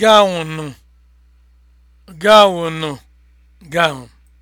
gaụnụ gaụnụ gaụn